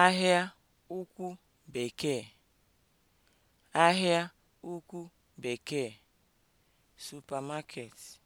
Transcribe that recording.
Ahịa Ukwu Bekee Ahịa Ukwu Bekee (Supermarket)